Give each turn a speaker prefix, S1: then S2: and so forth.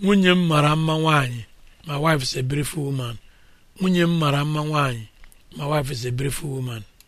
S1: nwunye m mara mma nwanyị my wife is a beautiful woman nwunye m mara mma nwanyị my wife is a beautiful woman